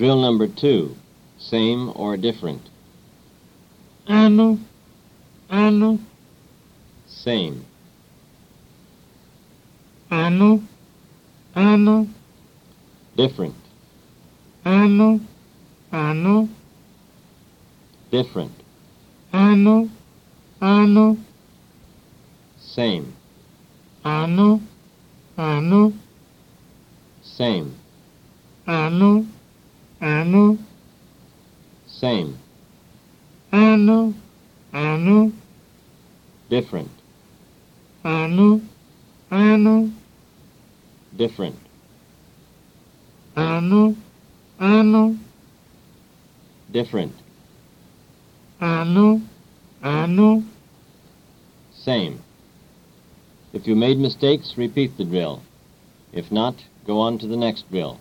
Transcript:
Drill number two, same or different? Ano, ano. Same. Ano, ano. Different. Ano, ano. Different. Ano, ano. Same. Ano, ano. Same. Ano. anụ same anụ anụ different anụ anụ different anụ anụ different anụ anụ same if you made mistakes repeat the drill if not go on to the next drill